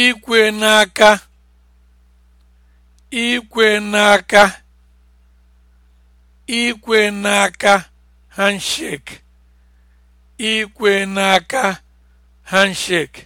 ikwe n'aka ikwe n'aka ikwe n'aka handshake ikwe n'aka handshake